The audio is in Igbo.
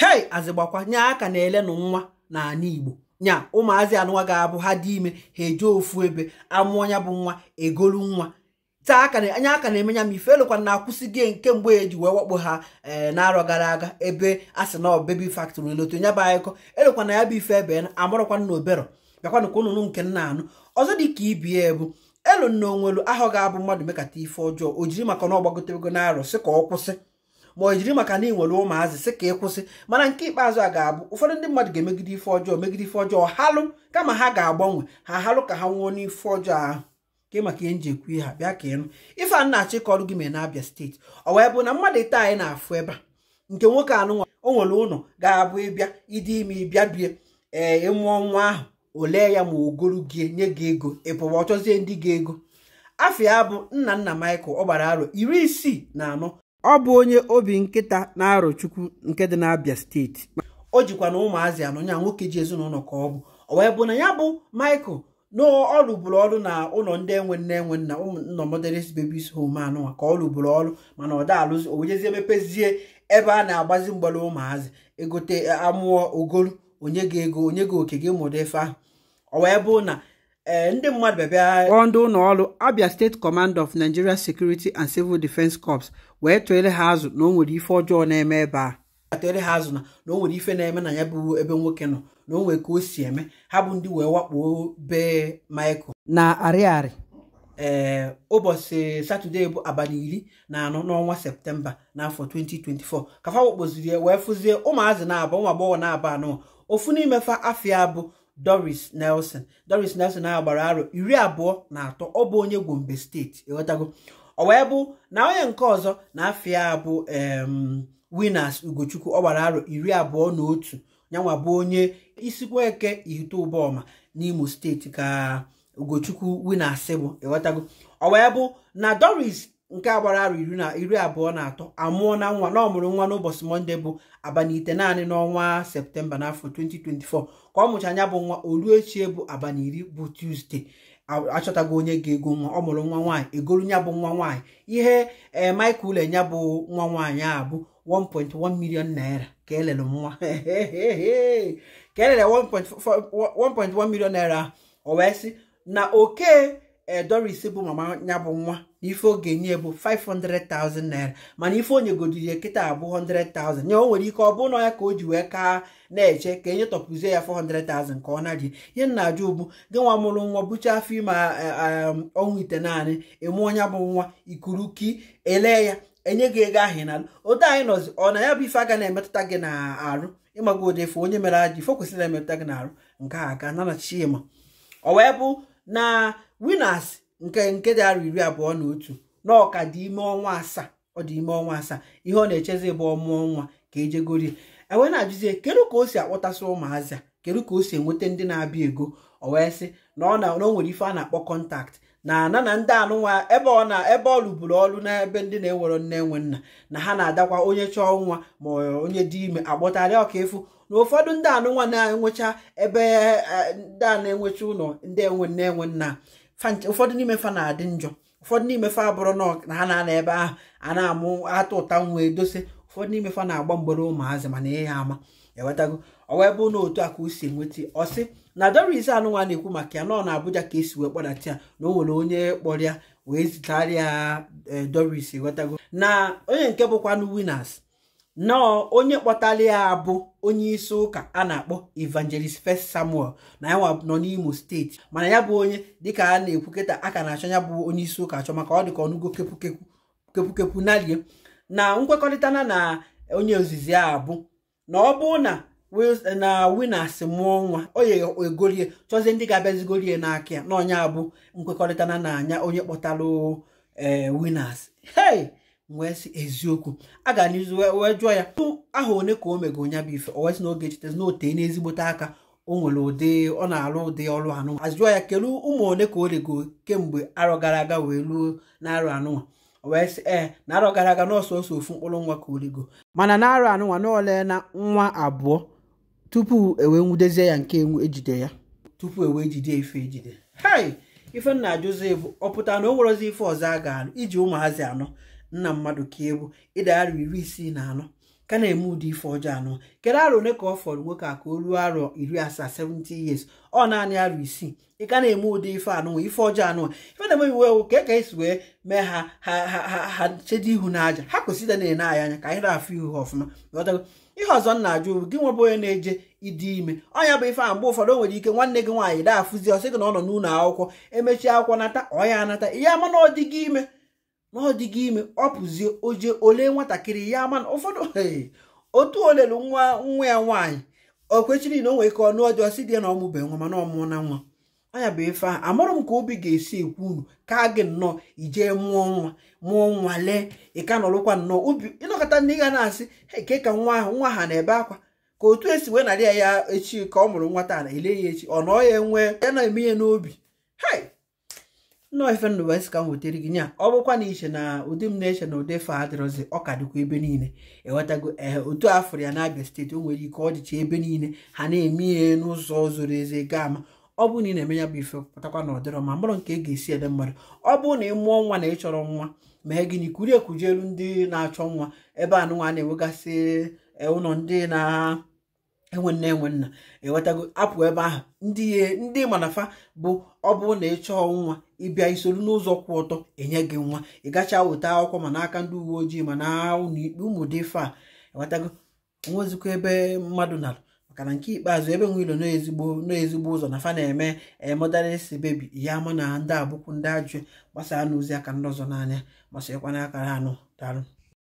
hei azịgbakwa nye aka na elenụ nwa na anya igbo nya ụmụazị anụnwa ga-abụ ha dị ime ha eje ofu ebe amụọ ya bụ nwa egolu nwa taa aka anya aka na-eme ya ma ife elụkwa na nke mgbe eji wee wakpo ha ee eh, n'arọ gara aga ebe a sị na ọbebi factory loto ya bụ anyịkọ elụkwa na ya bụ ife ebe na amarọkwa na obero bịakwanụ ka ụnụnụ nke nna anụ ọzọ dị ka ibie bụ elu nna onwelu ahụ ga-abụ mmadụ mekata ife ọjọọ o jiri maka na ọ gbagotewego n'arọ sị ka ọ kwụsị ma ọ jiri maka na ị nwere ụmụazị sị ka ị kwụsị mana nke ikpeazụ a ga-abụ ụfọdụ ndị mmadụ ga-emegide ife ọjọọ megide ife ọjọọ halụ kama ha ga-agbanwe ha halụ ka ha nwụọ n'ife ọjọọ ahụ nke maka ihe nji ekwu ha bịa ka ịnụ ife a na-achọ ịkọrụ gị mee na-abịa steeti ọ wee bụ na mmadụ ite anyị na-afụ ebe a nke nwoke anụnwa o nwere ụlọ ga-abụ ịbịa ịdị ime ịbịa bie ee ịmụọ nwa ahụ olee ya ma ogolu gị nye gị ego ị pụwa ndị gị ego afọ ya bụ nna nna Michael ọ gbara arọ iri isii na anọ ọ bụ onye obi nkịta na-arọchukwu nke dị n'Abia steeti o jikwa na ụmụazị anọ ya nwoke ji ezinụlọ ka ọ bụ ọ wee bụ na ya bụ Michael na ọ ọrụ na ụlọ ndị enwe nne enwe nna ụmụnọ modelis bebis hom anụwa ka ọ lụbụrụ ọrụ mana ọ daalụzi owejezie wejezie mepezie ebe a na-agbazi mgbara ụmụazị egote e, amụọ ogolu onye ga ego onye ga oke gị mụrụ efe ahụ ọ wee bụ na ee eh, ndị mmadụ bịabịa kpọọ ndị ụlọ ọrụ Abia State Command of Nigeria Security and Civil defense Corps wee tụele ha azụ na o nwere ife ọjọọ na-eme ebe a atụele ha azụ na na o nwere ife na-eme na ya bụ ebe nwoke nọ na o nwere ka o si eme ha bụ ndị wee wakpo be Michael na arịarị ee eh, ụbọchị satọde bụ abalị iri na anọ n'ọnwa septemba n'afọ 2024 ka fa wee fụzie ụmụazị na-aba ụmụ agbọghọ na-aba anọ ofu n'imefa afịa bụ doris nelson doris nelson a gbara aro iri abụọ na atọ ọ bụ onye gombe steeti ịghọtago ọ wee bụ na onye nke ọzọ na afia bụ winners ugochukwu ọ gbara arọ iri abụọ na otu nyanwa bụ onye isikweke ike n'imo steeti ka ugochukwu winners bụ ịghọtago ọ wee bụ na doris nke a gbara arụ iri na iri abụọ na atọ amụọ na nwa na ọmụrụ nwa n'ụbọchị monde bụ abanite naanị n'ọnwa septemba n'afọ 2024 ka ọ mụcha anya bụ nwa olu echie bụ abaniri iri bụ tuzdee achọtago onye ga-ego nwa ọ mụrụ nwa nwaanyị egolu nya bụ nwa nwaanyị ihe ee Michael ule nya bụ nwa nwaanyị a bụ 1.1 million naira ka elele nwa ka elele 1.1 milion naira o wee sị na oke Eh, ise bụ mama ya bụ nwa na ife oge nye bụ 500,000 naira mana ife onye godiri kịta abụ 100,000 ya o nwere ike ọ bụ na ya ka o ji wee ka na-eche ka enye tọpụzie ya 400,000 ka ọ na-adị ihe nna ajụ ụgbụ gị nwa mụrụ nwa bụcha afọ ime um, ọnwụ ite naanị ịmụ onye bụ nwa ikuruki ele ya enye gị ego ahụ n'ala anyị nọzi ọ na ya bụ ife aga na-emetụta gị na-arụ ịmago ụdị ife onye mere ajọ ife kwesịrị emetụta gị na-arụ nke a aka na ọ wee bụ na winas nke nke arọ iri abụọ na otu na ọka dị ime ọnwa asaa ọ dị ime ọnwa asaa ihe ọ na-echezi bụ ọmụọ nwa ka ejegorie enwe na-ajụzie kedu ka o si akpọtasị ụmụazị kedu ka o si enweta ndị na-abịa ego ọ wee sị na ọ na o nwere ife a na-akpọ kọntakt na na na ndị anụnwa ebe ọ na ebe ọ rụburu ọrụ n'ebe ndị na-ewere nne nwe nna na ha na-adakwa onye chọọ nwa ma onye dị ime agbọtarịa ọka efu na ụfọdụ ndị anụnwa na-enwecha ebe eh, ndị a na-enwecha ụlọ ndị enwe nne enwe nna ụfọdụ n'ime fa na-adị njọ ụfọdụ n'ime fa abụrụ na ha na-ana ebe ahụ a na-amụ atụ ụta nwa edose. ụfọdụ n'ime fa na-agba mgbere ụmụazị mana ihe ama ewetago ọ wee bụ na otu a ka o si enweta ọ sị na Doris anụnwa na-ekwu maka ya nọ na Abuja ka esi wee kpọdata ya na o nwere onye kpọrọ ya wee zitarịa eh, Doris ewetago na onye nke bụkwanụ winners nọọ onye kpọtara ya abụ onye isi ụka a na-akpọ evangelist first samuel na ya nọ n'imo steeti mana ya bụ onye dịka a na-ekwu kịta aka na-achọ ya bụ onye isi ụka achọ maka ọ dịka ọnụgo kepukepu narie na nkwekọrịta na onye ozizi a bụ na ọ bụ na na winas mụọ nwa onye egorie chọzie ndị ga-abịazigorie n'aka ya na onye abụ nkwekọrịta na anya onye kpọtara eh, winas hey wee si eziokwu a ga n'izu wee jụọ ya tụ aha one ka o mego nya bụ ife o wee sị na oge chitezi na otee n'ezigbote aka o nwere ụdị ọ na-alụ ụdị ọrụ anụnwa a jụọ ya kelu ụmụ one ka o rego kemgbe arọ gara aga wee ruo na-arụ anụnwa wee sị ee eh, na arọ gara aga n'ọsọsọ ofu mkpụrụ nwa ka o rego mana na arọ anụnwa na ole na nwa abụọ tupu ewee nwudezie ya nke enwu ejide ya tupu ewee jide ife ejide hei ife nna bụ ọ pụtara na o nwerozi ife ọzọ a ga-alụ iji ụmụazị anọ nna mmadụ ka ewu ịda arọ iri isii na anọ ka na-eme ụdị ife ọjọọ anọ kedu arọ ole ka ọ fọrọ nwoke a ka o ruo arọ iri asaa 70 years ọ naanị arọ isii ị ka na-eme ụdị ife anụnwa ife ọjọọ anụ ife na-eme iwu ewu ka e ka esi wee mee ha ha chedo ihu n'aja ha kwesịrị na-ene anyị anya ka anyị na-afụ ihu ha ọfụma ihe ọzọ m na-ajụ gị nwebụ onye na-eje ịdị ime ọnya bụ ife a mgbe ụfọdụ o nwere ike nwanne gị nwaanyị daa afụzi ọsị gị na ọ nọ n'ụlọ akwụkwọ emechi akwụkwọ nata ọya anata ihe ama na ọ dị gị ime na ọ dịghị ime ọ pụzie oje ole nwatakịrị ya mana ụfọdụ otu olelu nwa nwa ya nwaanyị o kwechiri na o nwere ike ọnụ ọjọọ si dị ya na ọmụbe nwa mana ọmụọ na nwa anya bụ efe a amarụ m ka obi ga-esi ekwu unu ka gị nnọọ ijee mụọ nwa mụọ nwa lee ịka nọrụkwa nnọọ obi ịnọkọta ndị ga na-asị eke ka nwa ahụ nwa ha na-ebe akwa ka otu esi wee narị ya ya echi ka ọ mụrụ nwa taa na ele ya echi ọ nọọ ya enwee ya na-eme ya n'obi hei nnọọ ife ndụ wee ka m wetere gị nya ọ bụkwa na iche na ụdị m na-eche na ụdị fa adịrọzi ọ ka dịkwa ebe niile ewetago ee otu afọrọ ya na Abia steeti o nwere ike ọ dịcha ebe niile ha na-eme ihe n'ụzọ zoro eze ga ama ọ bụrụ na ị na-eme ya bụ ife pụtakwa na ọdịrọ ma mmadụ nke ga-esi ede mmadụ ọ bụrụ na ị mụọ nwa na ị chọrọ nwa mee gịnị kurie ekujelu ndị na-achọ nwa ebe anụnwa na-enwegasị e, ụlọ ndị na enwe nne enwe nna ewetago apụ ebe ahụ ndị ndị manafa bụ ọ bụrụ na ị chọọ nwa ịbịa isoro n'ụzọ kwụ ọtọ enye gị nwa ị gachaa weta akwụkwọ ma n'aka ndị uwe ojii ma na ụlọikpe ụmụ dị ife a ewetago ebe mmadụ nara maka na nke ikpeazụ ebe nwe ilo n'ezigbo n'ezigbo ụzọ na fa na-eme emọdaresi eh, bebi ya ama na ndị abụkwu ndị ajụ gbasaa n'ozi aka ndị ọzọ n'anya gbasakwana akara anụ daalụ